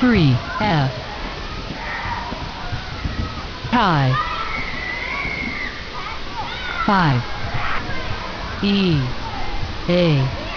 three F tie five E A